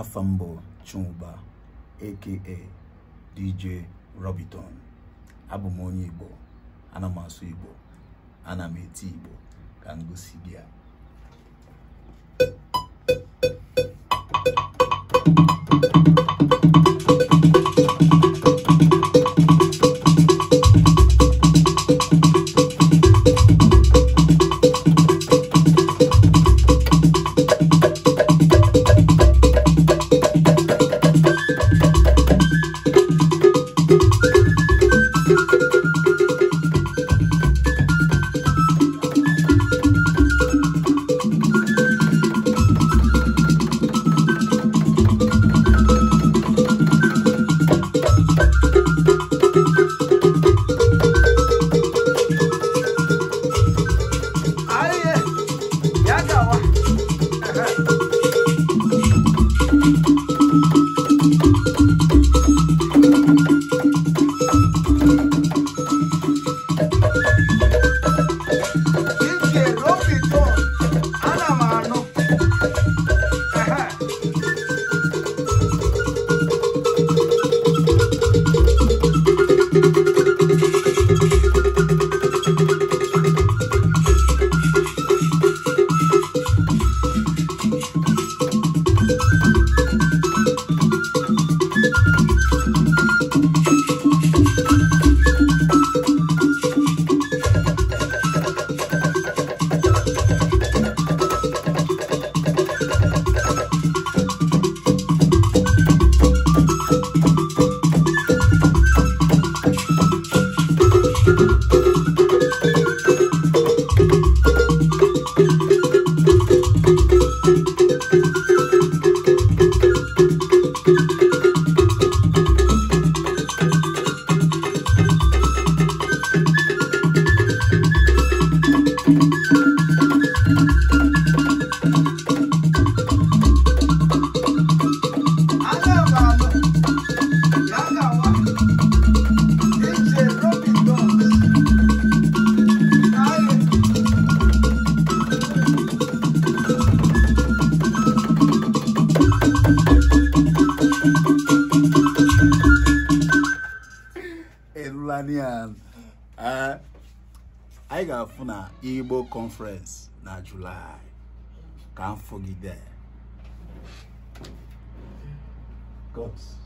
afambo mbụ Chuba aka DJ Robiton abụ m onye Igbo ana m asụ Igbo ana m eti Igbo ka m gosi gị ya Ghanaian. Uh, I got funa Igbo conference na July. Can't forget that. God's.